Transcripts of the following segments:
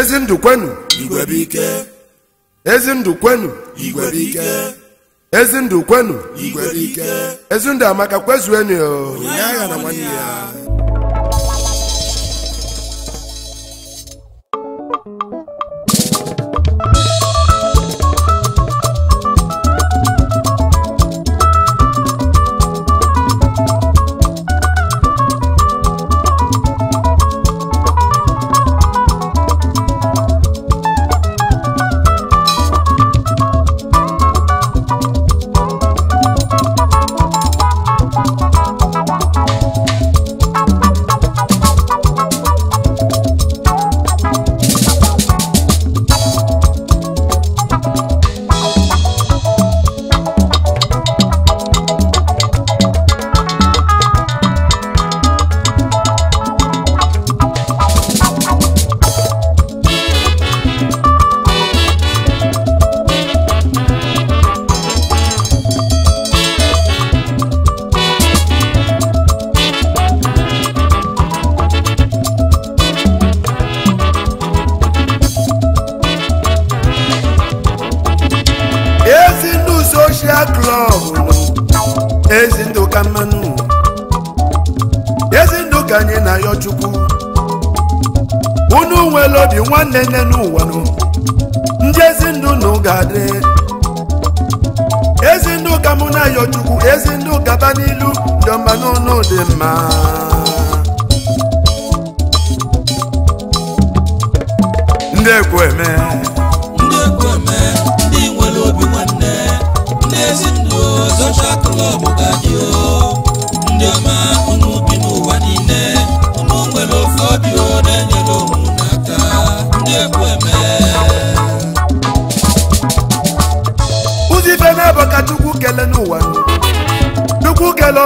ezi ndụ kwenu igwebike ezi ndụ kwenu igwebike ezi ndụ kwenu igwebike ezi ndụ amaka kwezuenu onye agha na nwanne ya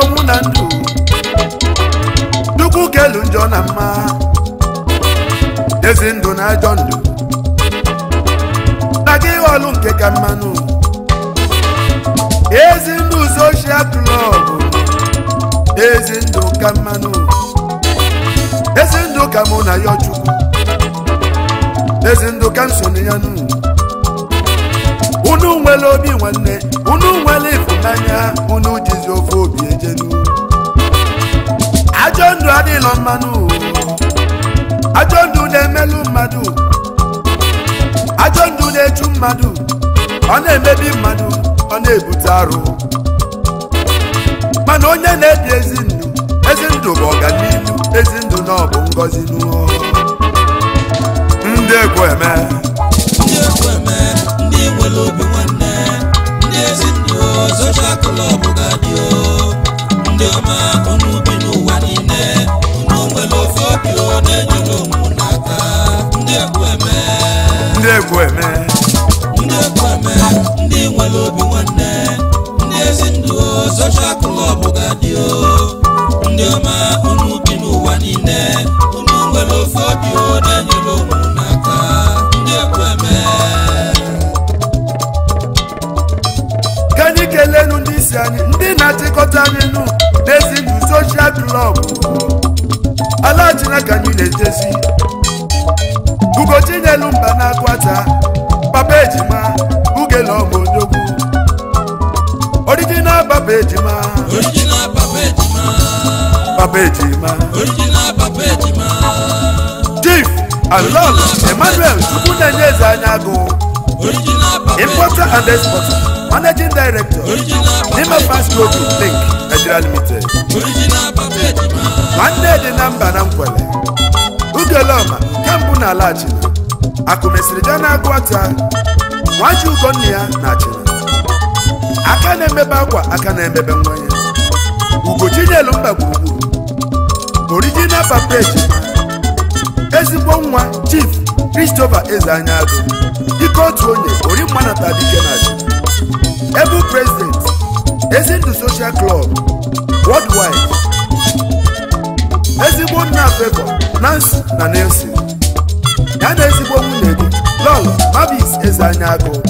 ọnwụ na ndụ Chukwu elu njọ na mma ezi ndụ na ajọ ndụ na gị ọlụ nke ka mmanụ ezi ndụ soshal klọb ezi ndụ ka mmanụ ezi ndụ ka mụ na ya Chukwu ezi ndụ ka m ya nụ unu nwere obi nwanne unu nwere ịfụnanya unu jizi ofe obi ejenu ajọ ndụ adịlọ mmanụ ajọ ndụ na-emelụ mmadụ ajọ ndụ na-echu mmadụ ọ na-emebi mmadụ ọ na-ebute arụ mana onye na-ebi ezi ndụ ezi ndụ bụ ọganihu ezi ndụ na bụ ngọzi n'ụọ ndị ekwe eme nwere obi nwanne ndị ezinụ soshal ga-adị ndị ọma unu bi n'ụwa niile nwere ofe obi na-enyere onwe n'aka ndị egwu eme ndị egwu eme ndị nwere obi nwanne ndị ga ndị ọma n'ụwa niile nwere ofe obi na-enyere ụmụ n'aka ndị egwu eme ndị isi anyị ndị na-achịkọta n'elu n'ezinu soshal klọb ka niile anyị na-ejezi ugochinyelu mba na-akwata papa ejima ugele ọbụ onyogwu papa ejima papa ejima papa ejima ejima emmanuel Tupu na-enye eze anya agụ managing director Nima fast global link Nigeria limited nwanne dị na mba na nkwele nke mbụ na ala achịna akụmesịrị ja na agụata nwaji ugonna ya na achịna aka na-emebe akwa aka na-emebe nwa ya ugochinyelu mba gburugburu original papeji ezigbo nwa chief Christopher Ezeanyago dịka otu onye ori mmanata dike na achịna Able President Ezindụ Social Club Worldwide ezigbo nna Favour Nancy na Nelson ya na ezigbo nwunye gị Lolo Mabis Ezeanya Agụ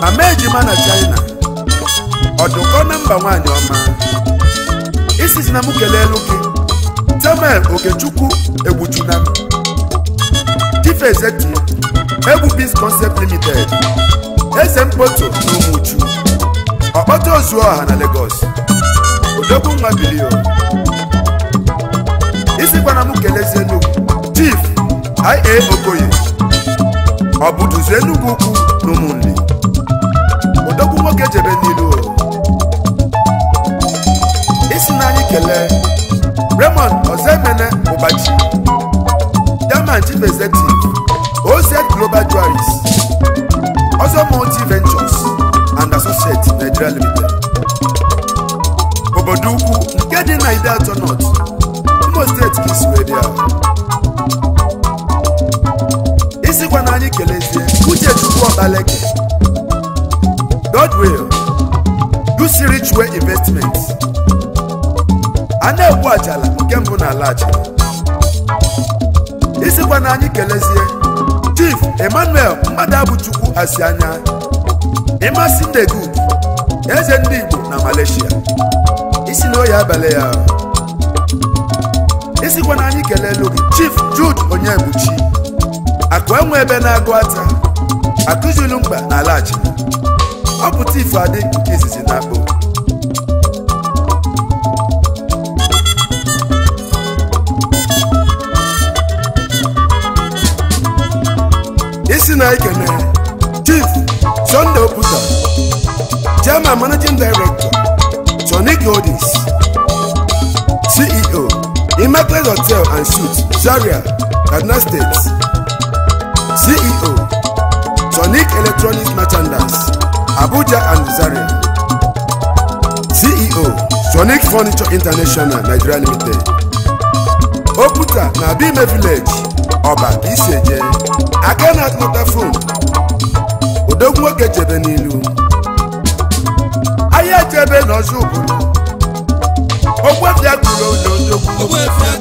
mama na China ọdụkọ na mba nwanyị ọma isizi na m kelelu gị Samuel Okechukwu egbuchuna m Egbu Biz Concept Limited eze mkpoto na ụmụchu ọkpọta ozu ọha na Lagos odogwu nwa bilio isi gbana m kelezie Enugu Chief ia Okoye ọ bụ duzu Enugu ukwu na ụmụnne odogwu nwoke jebe n'ilu isi na anyị kelee Raymond Ozemene Ụbachi german Chief Executive OZ Global Jewelries Ozomo Venture Nigeria Limited obodo ukwu nke dị na Ide Atọ North Imo steeti ka isi wee kelezie uche chukwu ọbaleke dodwill usirichwe investment a na-egbu ajala nke mbụ na ala ajala isikwa na kelezie chief emmanuel mmadụ abụchukwu asi anya eze ndị Igbo na Malaysia isi na oyi abalị ya isikwa na anyị kelelu Chief Jude Onyebuchi akụ enwe ebe na-agụ ata akụzulu mkpa na alachi ọ pụta ife adị nke izizi na akpụ isi na ikene Chief Sunday Oputa Chairman Managing Director Tony Goldis CEO Immaculate Hotel and Suites Zaria, Kaduna State CEO Sonic Electronics Merchandise Abuja and Zaria CEO Sonic Furniture International Nigeria Limited okuta na Abime Village Ọba Iseje aka na-atụmọta fon odogwu nwoke chebe n'ilu onye chebe n'ọzọ obodo ogwefia kwuru ododogwu ogwefia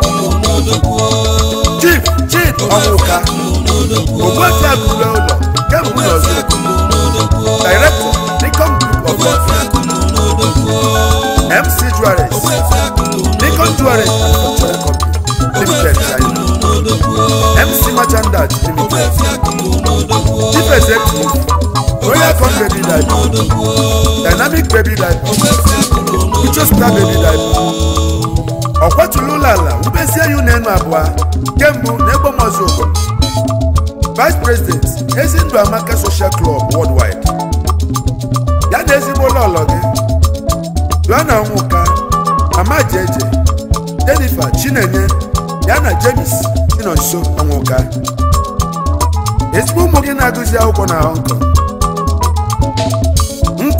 kwuru ododogwu chief chief ọmụka ogwefia kwuru ụlọ kemgbe n'ọzọ director Nikon Group of MC Juarez Nikon Juarez Cultural Company Limited China MC Merchandise Chief royal oh, con bebi life dynamic baby life uche star baby life ọ kwatụla ụlọ ala wubezie ya ụlọ enu abụọ kemgbe na egbomọzụ ụkọ vice president ezindụ amaka social club worldwide ya na ezigbo ụlọ ụlọ gị joanna nwụka mama jeje jennifer chinenye ya na james dị nọ ezigbo ụmụ gị na-agụzi akwụkwọ na hong kong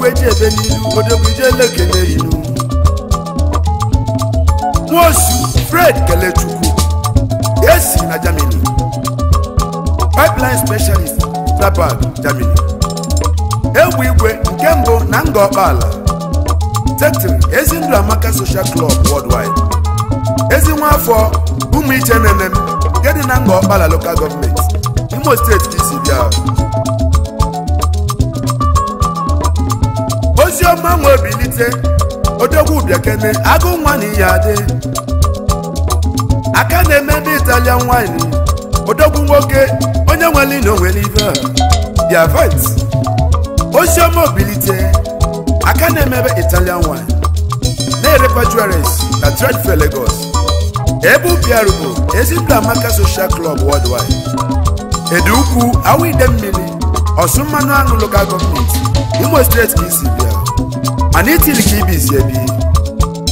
odogwu eji ebe n'ilu odogwu ije lekele ilu nwosu fred kelechukwu esi na germany pipeline specialist trabag germany egwu igwe nke mbụ na nga ọkpaala tetiri ezi ndụ amaka social club worldwide ezi nwa afọ ụmụ iche nene nke dị na nga ọkpala local gọọmenti imo steeti ka isi bịa ma nwe bilite odogwu biakene agụ nwa na iyi adị aka na-eme ndị italian wine odogwu nwoke onye nwere ina onwere ife the event oziọma obilite aka na-emebe italian wine na-erekwa jewelries na tredfe Lagos ebe bụ ezimba amaka social club worldwide edu ukwu ide mmiri ọsụ mmanụ aṅụ local Imo steeti ka isi bịa na itili ka ibizi ebi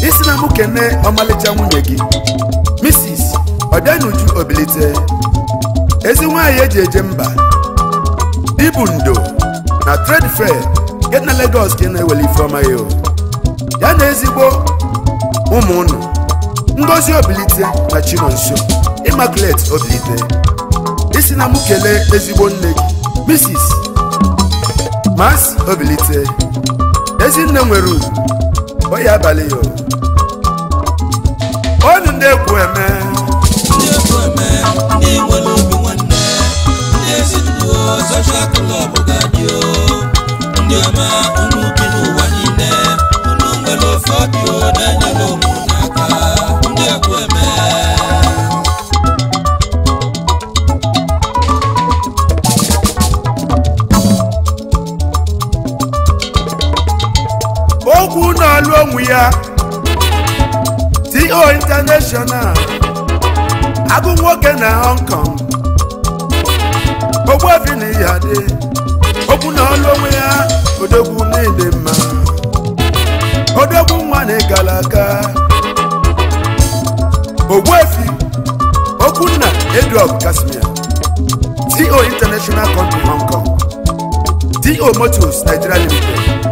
isi na mụ kene ọmalịcha nwunye gị misis ọbịanuju obilite ezi nwaanyị eji eje mba ibu ndo na tred fair nke na Lagos gị na eweli ifeọma ya ya na ezigbo ụmụ ngozi obilite na chinonso immaculate obilite isi na mụ kelee ezigbo nne gị misis mas obilite Ezinne nwere ugwu oyi abalị ya onye ndị egwu eme ndị nwere obi ọma n'ụwa niile nwere ofe na ụmụ n'aka ndị egwu eme onwe ya to international agụ nwoke na hong kong ogbuefi na ya dị okwu na ọlụ onwe ya odogwu n'ịdị mma odogwu nwa na gara aga ogbuefi okwunna edrop kasimia to international company hong kong co motors nigeria limited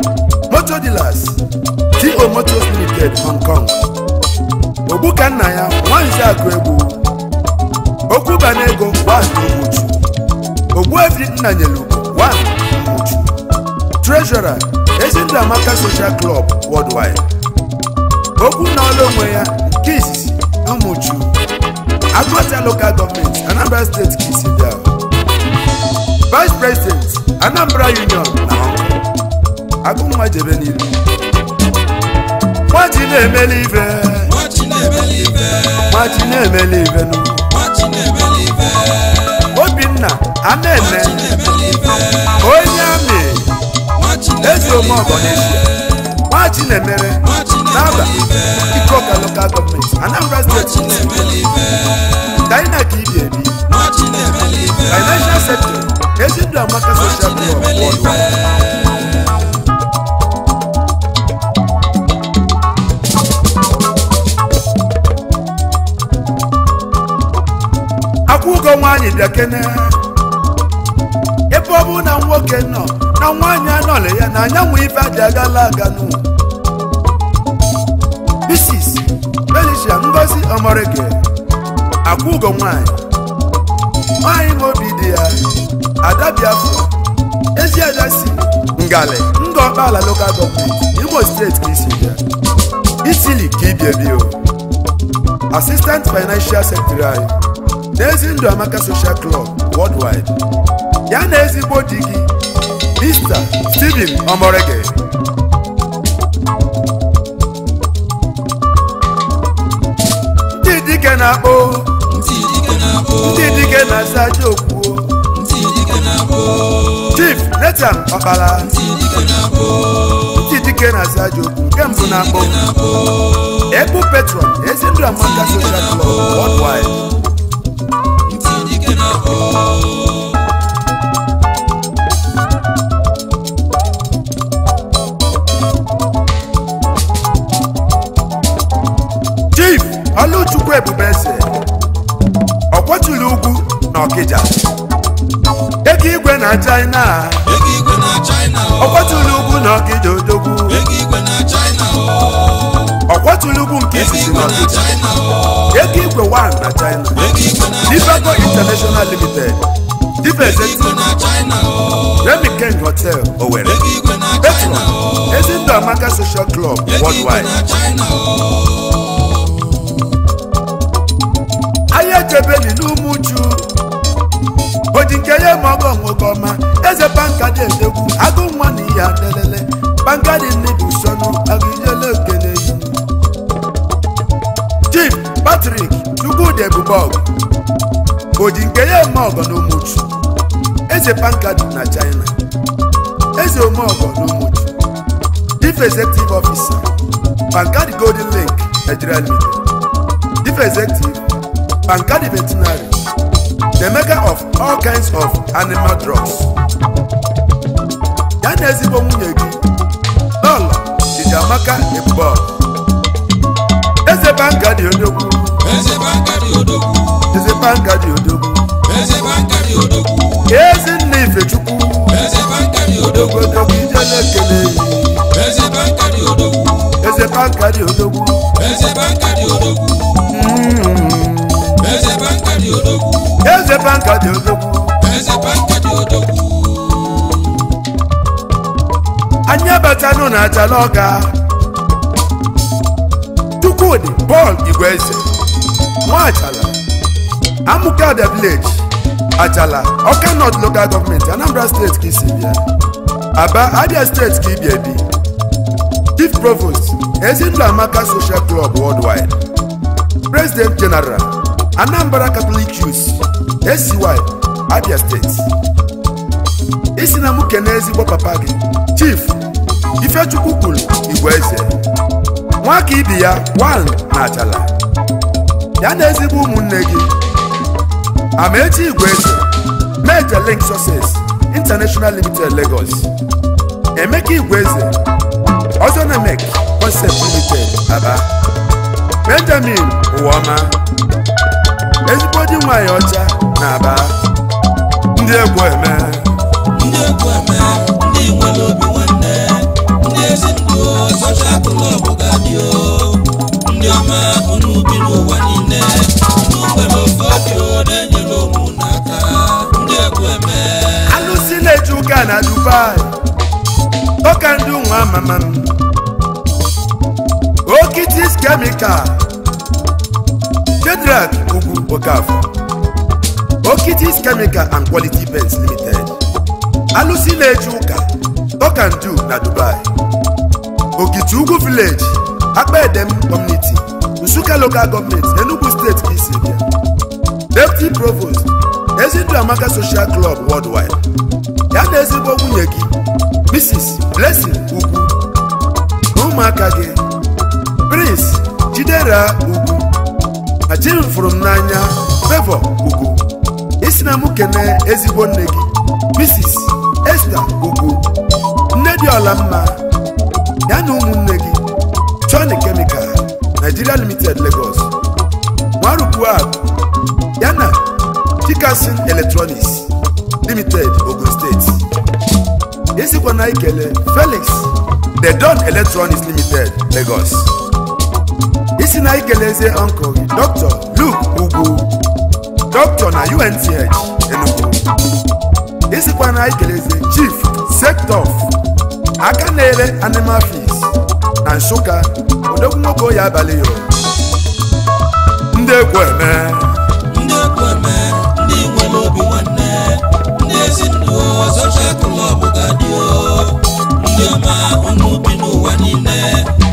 motor dealers Igbo Motos Limited Hong Kong Ogbuka nna ya nwanze akụ egwu okwu bana ego Ogbuchu Ogbuefi Nnanyelu Ogbuchu Treasurer Ezindu Amaka Social Club Worldwide okwu na ọla onwe ya nke izizi Umuchu Local Government Anambra State Kisibia Vice President Anambra Union na Hong Kong agụnwa jebe n'iru nwachi na emele ibe nwachi na-emeli ibe obinna anene onye amị eze omeọgọnesi nwachi na-emere n'aba ikoka lokal gọọmenti anambra steeti dainak ibi ebi financial sector ezindụ amaka social media ogo nwaanyị na ebe ọ bụ na nwoke nọ na nwaanyị anọla ya na anyanwụ ife adị agala aganụ Mrs. Felicia Ngozi Omorike akwụ ugo nwaanyị nwaanyị obi dị ya ada Biafra ezi ada si ngalị ngọkpala local gọọmenti Imo steeti ka isi bịa Italy ka o Financial Secretary n'ezi ndụ amaka social club worldwide ya na ezigbo di gị Mr. Stephen Omorege ndị dike na-akpọ ndị dike na-asa jokwuo chif Nathan Okpala ndị dike na-asa nke mbụ na-akpọ Ebu petrol ezi ndụ amaka social club worldwide Chief Oluchukwu Ebubeze ọkwọchili ugwu na Ọkịja ego igwe na China ọkwọchili ugwu na Ọkịja odogwu ọkwatulugwu nke isisi na ọdịda ego igwe 1 na china dibago international limited dibezeti remi king hotel owere petron ezindụ amaka social club worldwide ahịa ejebeli n'ume uju oji nke ya ma nwoke ọma eze pankadi edegwu agụ nwa na ihe adelele pankadi nne bụ usonu agụ Patrick Chukwudi Ebubọgụ oji nke ya eme ọgọ na Umuchu eze pankadu na China eze ome ọgọ na Umuchu Chief Executive Officer Pankadi Golden Lake Nigeria Limited Chief Executive Pankadi Veterinary the maker of all kinds of animal drugs ya na ezigbo nwunye gị lọlọ Chijiamaka Ebubọgụ eze Pankadi onye eze Bangadi Odogwu eze Bangadi Odogwu eze Bangadi Odogwu ezi nna Ifechukwu eze Bangadi Odogwu Odogwu ije na-ekele eze Bangadi Odogwu eze Bangadi Odogwu eze Bangadi Odogwu eze Bangadi Odogwu eze Bangadi Odogwu eze Bangadi Odogwu anyị abatanụ na Ajalaọka Chukwudi Paul Igweze Nwa Achala Amuka the village Achala oka North local government Anambra State ka isi bịa Aba Abia State ka ịbịa ebi. Chief Provost Ezinụlọ Amaka Social Club Worldwide President General Anambra Catholic Youth SCY Abia State isi na m ezigbo papa gị Chief Ifechukwu kwuru Igwe Eze nwa ka ibi ya wan na Achala ya na ezigbo ụmụnne gị Amaechi eze Major Link Success International Limited Lagos Emeka eze Ozonemek Concept Limited Aba Benjamin Ụwama ezigbo di nwanyị ọcha na Aba ndị egwu eme ndị egwu eme ndị nwere obi nwanne ndị ezi ndụ ọcha akụlọbụ ndị ọma unu bi n'ụwa niile unu nwere ofe obi ole nyere ụmụ n'aka ndị egwu eme alụsị na-eji ụka na Dubai ọka ndị nwa amama m okitis kemikal Shedrack Ugwu Okafor okitis kemikal and quality pens limited alụsị na-eji ụka ọka ndị na Dubai Okiti Ugwu village akpa edem Nsukka local government Enugu steeti ka isi bịa deputy provost Ezindụ Amaka social club worldwide ya na ezigbo nwunye gị Mrs. Blessing Ugwu ụmụaka gị Prince Jidera Ugwu ma fụrụ m n'anya Favor Ugwu isi na m kene ezigbo nne gị Mrs. Esther Ugwu nne dị ọla mma ya na ụmụnne gị Johnny Chemical Nigeria Limited Lagos Nwarukwuab yana Chikasin Electronics Limited Ogun State na ikele Felix The Don Electronics Limited Lagos isi na ikeleze uncle Dr. Luke Ugwu Dr. na UNTH Enugu ikele eze Chief Sector aka na-ere animal feeds na Nsụka odogwu nwoke oyi abalị yo ndị ekwu eme ndị ekwu eme ndị nwere obi nwanne ndị ezinụlọ social club ga-adị ndị ọma unu bi n'ụwa niile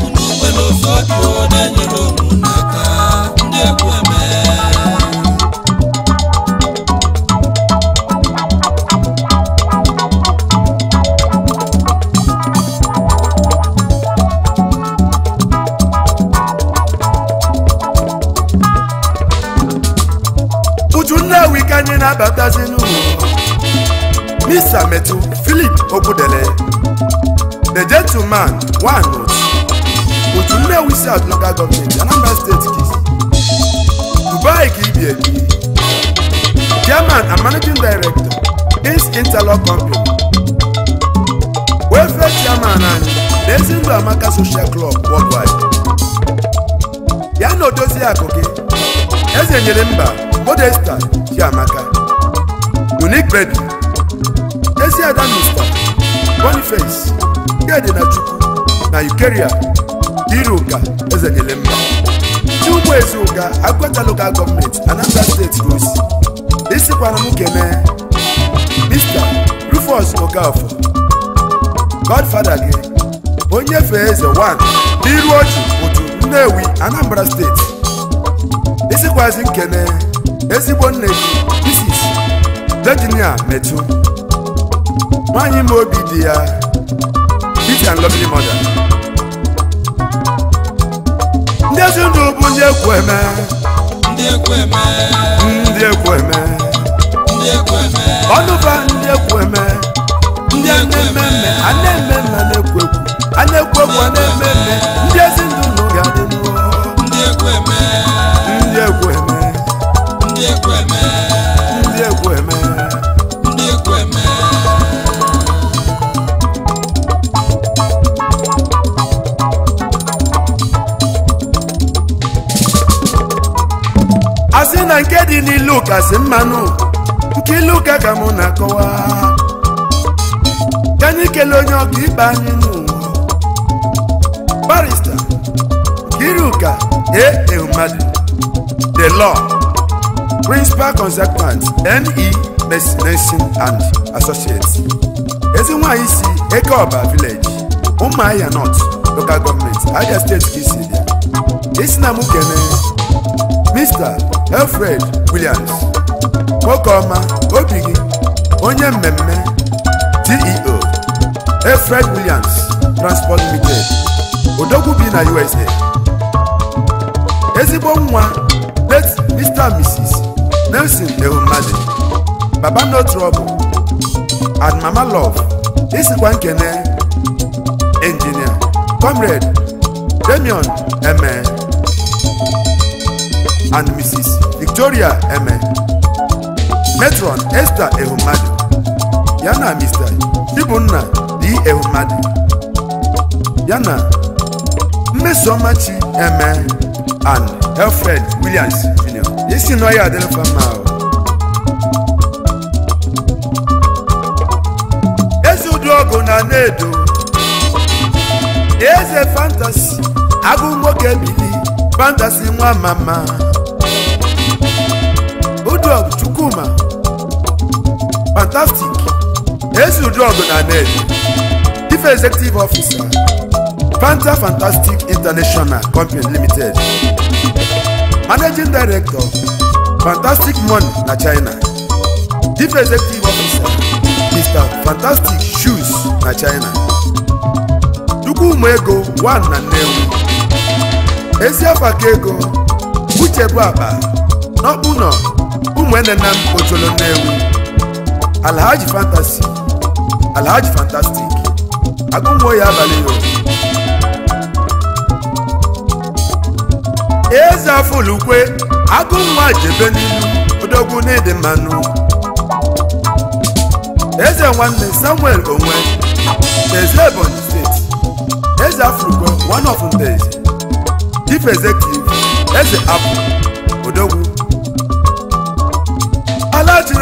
unu nwere dị ọdịo na-enyere bàbá sínú miss ametu philip ogudele the gentleman one note òtúnlẹ̀ wíṣẹ́ àdúgbò gọ́ọ̀mẹ̀ntì anambra state kìí dubai kìí bí ẹ̀bí chairman and managing director is interlock company welfare chairman and lẹ́sìndò amaka social club worldwide ya na odozi akụkị eze nyere mba modesta chiamaka unique baby Eziada Mr. Boniface Gedinachukwu na Ukeria Iruka ugbo-ezi Ezuka agwata Local Gọọmenti Anambra Steeti Gosi isikwana m kene Mr. Rufus Okafor Godfather gị onye fee eze 1 n'iru Oju otu Nnewi Anambra Steeti. isikwazi nkene ezigbo nne gị Virginia Metu nwanyị ma obi dị ya Beauty and Lovely Mother ndị ezi bụ ndị ekwu eme ndị ekwu eme ndị ekwu eme ọnụba ndị ekwu eme ndị ana-eme eme a na-eme eme a na-ekwu ekwu a ekwu ekwu a na-eme eme ndị ezi dị n'ilu ụka mmanụ nke ilu ụka ka mụ na-akọwa ka anyị kelee onye ọka ikpe anyị n'ụwa barista Nkiruka e, e A. the law principal consultant NE Messination and Associates ezi nwanyị si Ekeọba village Umuahia North local government Abia State ka isi dị isi na mụ kene Mr. Alfred Williams nwoke ọma obi gị onye mmemme DEO Alfred Williams Transport Limited odogwu bi na USA ezigbo nwa late Mr. Mrs. Nelson Ehumadi baba no trouble and mama love isikwa nkene engineer comrade Damion Eme and Mrs. Victoria Eme Matron Esther Ehumadu ya na Mr. Ibunna D. Ehumadu ya na Mmesọmachi Eme and Alfred Williams Jr. isi nọ ya adịrịfa mma eze ụdị ọgụ na na-edo eze fantasi agụ nwoke bili fantasi nwa mama Chukwuma fantastic Ezi Udrọgụ na Ned Ife Executive Officer Fanta Fantastic International Company Limited Managing Director Fantastic Money na China Ife Executive Officer Mr. Fantastic Shoes na China Chukwuma Ego 1 na Nnewi Eziafaka Ego Uche Igwene na Ocholo Nnewi Alhaji Fantasy Alhaji Fantastic agụnwo ya abalị ya eze olugbe agụnwa jebe n'ilu odogwu n'ịdị mmanụ eze nwanne Samuel onwe eze Ebonyi steeti eze afọlukwe one of ndezi chief executive eze apụ odogwu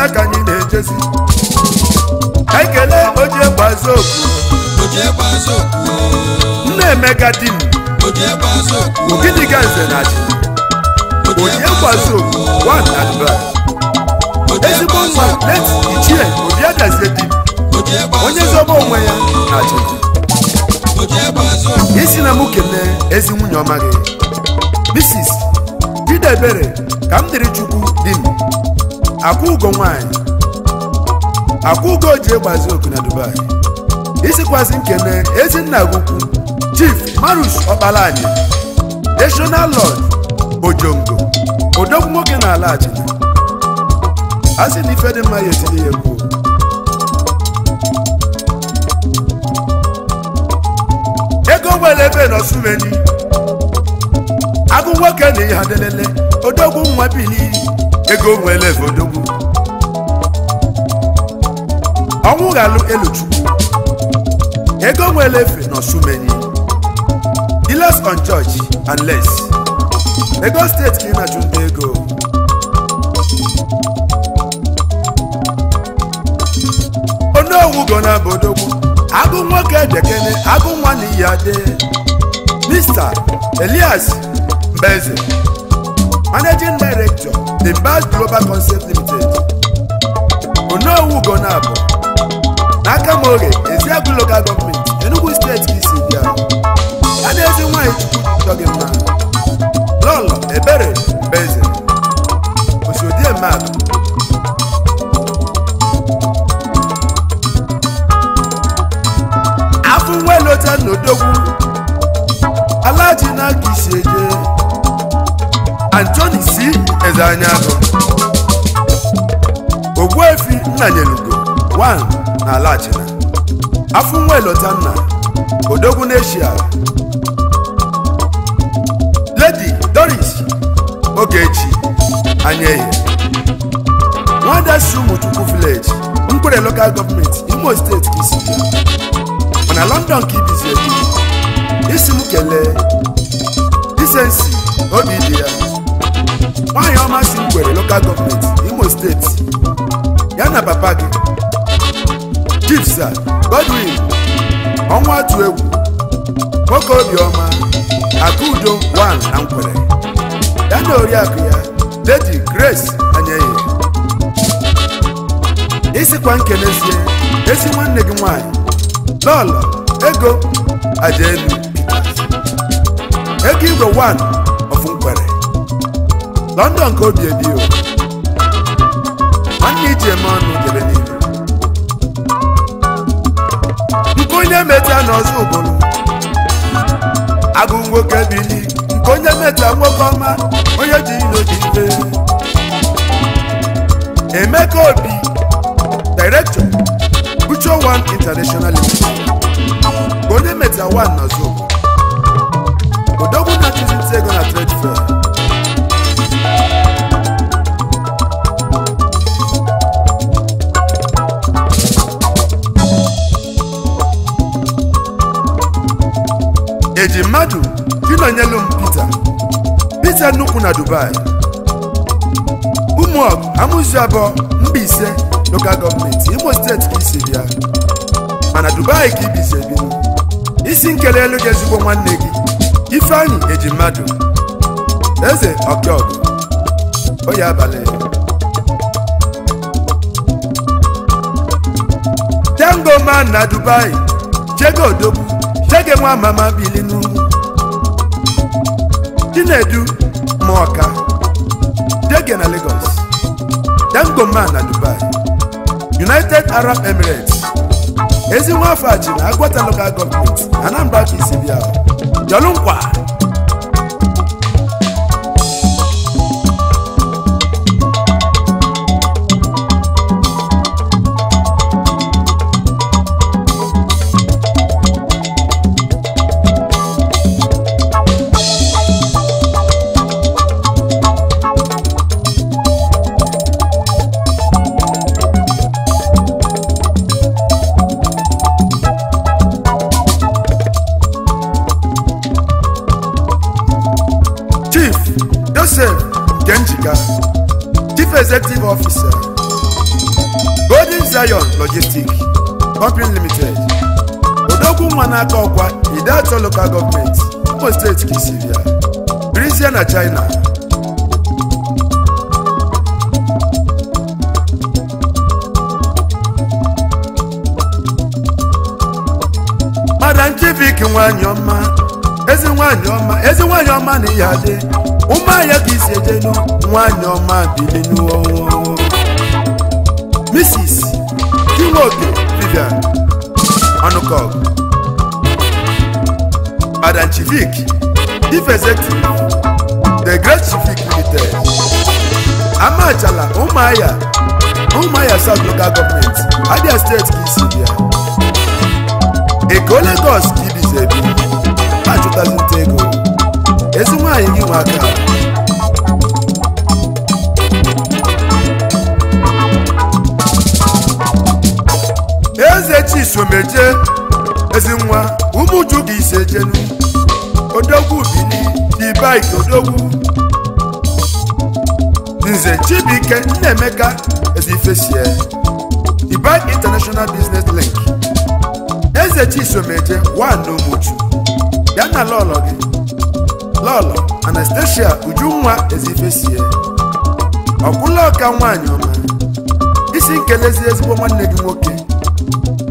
ya ka anyị na-ejezi ekele oje gbazoku nna emeka di m ogidi ga nze na ji oje gbazoku one and ezigbo mma, leti ichie obi obiadazie di onye zobe onwe ya na ji isi na m kene ezi nwunye ọma gị Mrs. Idebere ka m dịrị Chukwu di m akwụgo nwanyị akwụgo ji egbazi oku na Dubai isikwazi nkene ezinna gukwu chief marus Ọkpalanyi national lord ojongo odogwu nwoke na ala achịna a sị na ife dị mma ya etinye ya egwu ego nwere ebe agụ nwoke na ihe adelele odogwu nwa n'iyi. ego nwere odogwu ọnwụ ghalụ eluchukwu ego nwere efe n'osumenyi dealers on church and less Lagos steeti ka ị na-achụ ndị ego onowu go na agụ nwoke dekene agụ nwa na iyi ade Mr. Elias Mbeze managing director the Bas Global Concept Limited onowu ugonabụ n'aka m oge Eziagụ Local Government Enugu steeti isi adezi a talking man nwanyị ebere dị mma lọlọ ebere mbeze osodiemmadụ afọ nwe lota n'odogwu alaji n'aka isi eje Anthony si eze anyanwụ Ogbuefi Nnanyelugo na Alachina afọ nwa elota nna Lady Doris Ogechi Anyehi Nwada si Chukwu village Nkwere local government Imo steeti si isi mana London ka ibizi ebi isi m kelee isensi obi dị ya nwaanyị ọma si ngwere lokal gọọmenti imo steeti ya na papa gị jipsa godwin ọnwa tu egwu nwoke obiọma akudo wan na nkwere ya na oriakụ ya ledi grace anyeghị isikwa nkenezie ezi nwanne gị nwanyị lọlọ ego ajaelu ego igwe 1 London ka obi ebi o. nwanne iji eme ọnụ dere n'ihu nke onye meta n'ọzọ obodo agụ nwoke bili nke onye meta nwoke ọma onye ji ilo ji ibe Emeka Obi Director Ucho One International onye meta one n'ọzọ obodo odogwu na-achụzi ego na trade fair eji mmadụ ịnọnyelu m Pita Pita nnukwu na Dubai ụmụọgụ amụzi abụọ mba ise lokal gọọmenti Imo steeti ka isi bịa mana Dubai ka ibizi ebi isi nkere elu gị ezigbo nwanne gị Ifeanyi eji mmadụ eze ọkọgụ oyi abalị Tango man na Dubai jego odogwu tege nwa mama bili na chinedu ma ọka dege na Lagos dangoma na Dubai United Arab Emirates ezi afọ na Agwata local government Anambra ka isi bịa officer Golden Zion Logistics Company Limited odogwu nwa n'aka ọkwa Idato Local Government Imo State Kisiria Brizia na China Madam Chivik nwanyị ọma ezi nwanyị ọma ezi nwanyị ọma na ihe adị ụmụahịa ka isi ejenu nwanyị ọma bilinu ọnwụ Mrs. Chiwoke Vivian Ọnụkọg Adan Chivik Chief Executive The Great Chivik Limited Amachala Ụmụahịa ya South Local Government Abia State ka isi Eko Lagos ka ibize bi ha chụtazi ezi nwaanyị gị nwa aka eze chisomeje ezi nwa ụmụju gị ise jenu odogwu bili dibaik odogwu nze chibuike nnaemeka ezifesie dibaik international business link eze chisomeje nwa na ụmụju ya na lọlọ gị lọlọ Anastasia Ujunwa Ezifesie ọkwụla ọka nwaanyị ọma isi nkelezi ezigbo nwanne gị nwoke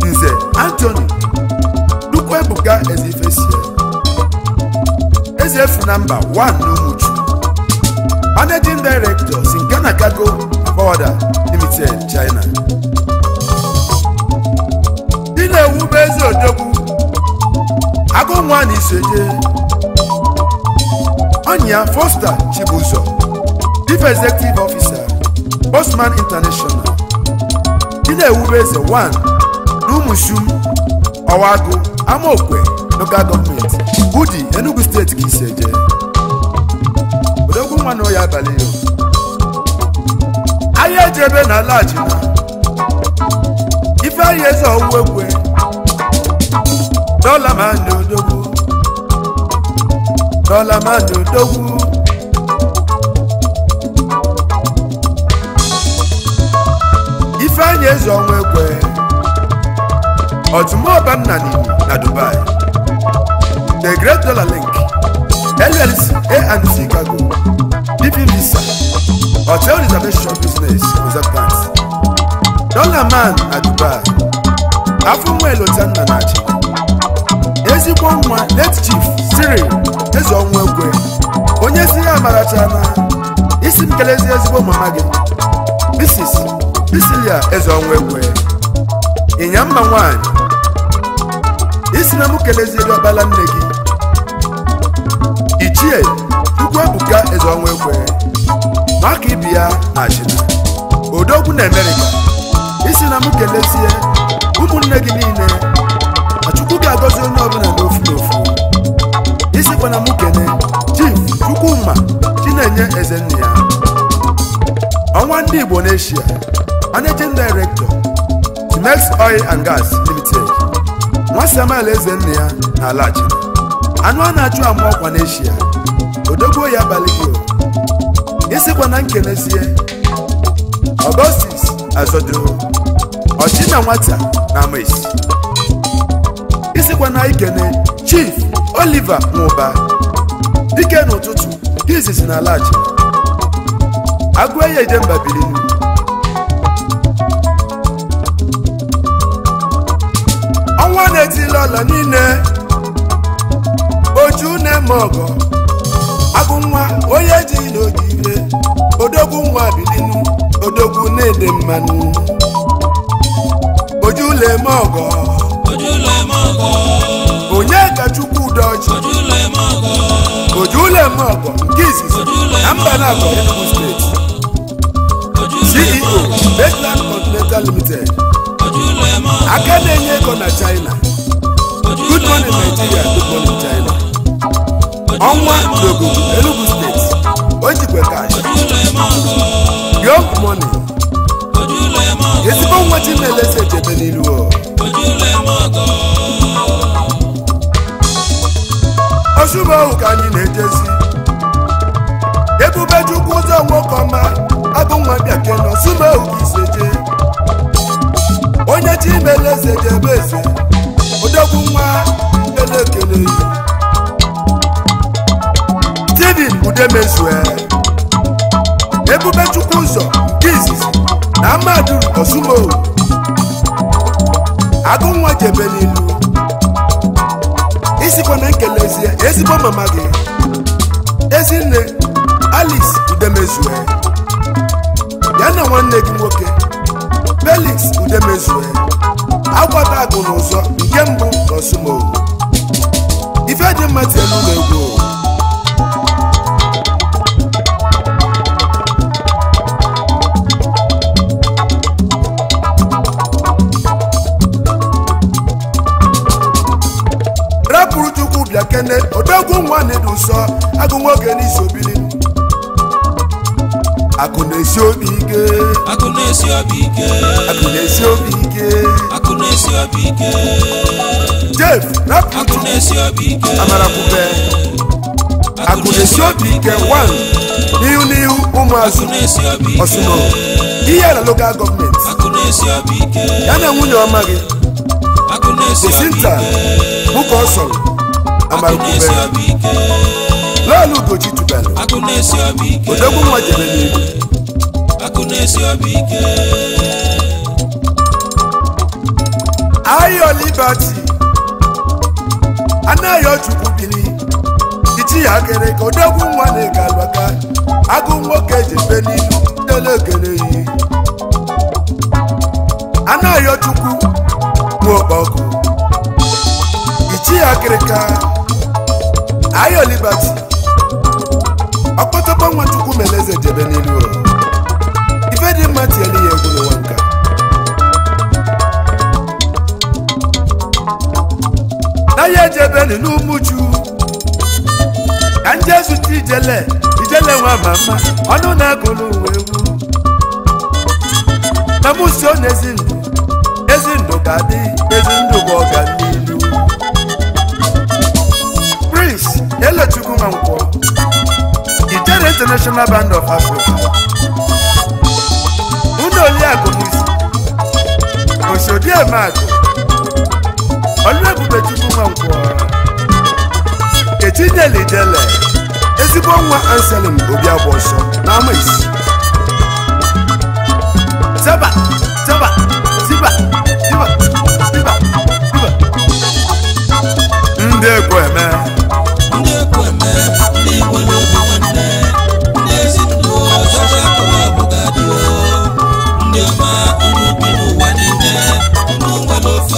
Nze Anthony Chukwuebuka Ezifesie Ezefu namba 1 n'Umuchu Managing na Sincana Cargo Border Limited China dị na-ewube eze odogwu agụ nwa na isoje Onya Foster Chibuzo, Chief Executive Officer, Bosman International, Ilewu Eze 1, numushu, Ọwagu, Amaokwe, Local Government, Udi, Enugu State ka isi eje. Odogwu nwa na na ala ajina, Ifeanyi uwewe. Ọwụwa Ekwe, Dọla kọ́lá má dòdòwú. ifeanyi eze ọnwa ekwe ọtụmọba nna nini na dubai the great dollar link llc anc cargo living visa hotel reservation business consultant dollar man na dubai afọ nwa elota nna na achị ezigbo nwa late chief cyril eze ọnwa ekwe onye si ya na isi m kelezi ezigbo mama gị isi ya eze ọnwụ ekwe ịnya mma nwanyị isi na m kelezieri ọkpala nne gị ichie ukwu ebuka eze ọnwụ ekwe maka ibi ya achịna odogwu na emerika isi na m kelezie ụmụnne gị niile achukwu ga-agọzi onye ọbụla n'ofu n'ofu ọbụla m kene chief chukwuma chinenye ezenna ya ọnwa ndị igbo n'eshia managing director Timex oil and gas limited nwa samuel ezenna ya na alachi anụ a na-achụ ama ọkwa n'eshia odogbo ya abalị gị isikwa na nkenezie Augustus azodoro ọchịna nwata na amaisi isikwa na ikene chief Oliver Nwụba dike n'ụtụtụ izizi na alaji agụeye Idemba bilinu ọnwa na-etila ọla niile oju na-eme ọgọ agụ nwa onye ji ire, odogwu nwa bilinu odogwu na-ede mmanụ oju na-eme ọgọ onye ka chukwu dọji ojuleme ọgọ nke izizi na mbanagọ enugu steeti ceo baseland continental limited aka na-enye ego na china good morning nigeria good morning china ọnwa dogo enugu steeti o jikwe kash young money ezigbo nwa chi na-elesi echebe n'ilu osubo ohu ka anyị na-ejezi ebube chukwu ụzọ nwoke ọma abụ nwa bịake na osubo ohu ka iseje onye chi eze jebe eze odogwu nwa ele ekele yi steven udemezue ebube chukwu ụzọ nke izizi na Amadu osubo ohu agụ nwa jebe n'ilu isikwa nkele ezigbo mama gị ezinne alice udemezue ya na nwanne gị nwoke felix udemezue agbata agụ n'ụzọ nke mbụ ife dị elu tielu egwu nene odogwu nwa na-edu nsọ agụ nwoke n'isi obili akụ na-esi obi ike akụ na-esi obi ike akụ na-esi obi ike akụ na-esi obi ike rapụ akụ na-esi obi ike amara akụ na-esi obi ike n'ihu n'ihu ụmụazụ ihe na lokal gọọmenti ya na nwunye ọma gị bụ ka ọ sọrọ amarụkube lelu ugoji tubelu odegwu nwa jere n'elu ayọ liberty anaghị chukwu bili ichi ya kere ka odegwu nwa na-ega agụ nwoke ji n'ilu delekere yi anaghị chukwu nwa okpọkụ ichi ya kere ayo liberty ọkpọtọkpọ nwachukwu mere eze njebe n'elu ụlọ ife dị mma tinyere ya egwu n'ụwa nka n'ahịa ejebe n'umuju ka nje zụta ijele ijele nwa ma mma ọnụ na-agụlụ uwe egwu ma mụ na ezinụlọ ndụ ezi ndụ ga-adị ezi ndụ bụ ọganihu Elechukwu nkwo. Ijere International Band of Africa Unu Oliakụ Nisi Osodieme Akụ Oluebubechukwu Mankwọ nkwo. Etinyel'Ijele ezigbo nwa obi Obiagbọsọ na ama isi Zaba, zaba, Ziba Ziba Ziba Ziba Ndị egwu Eme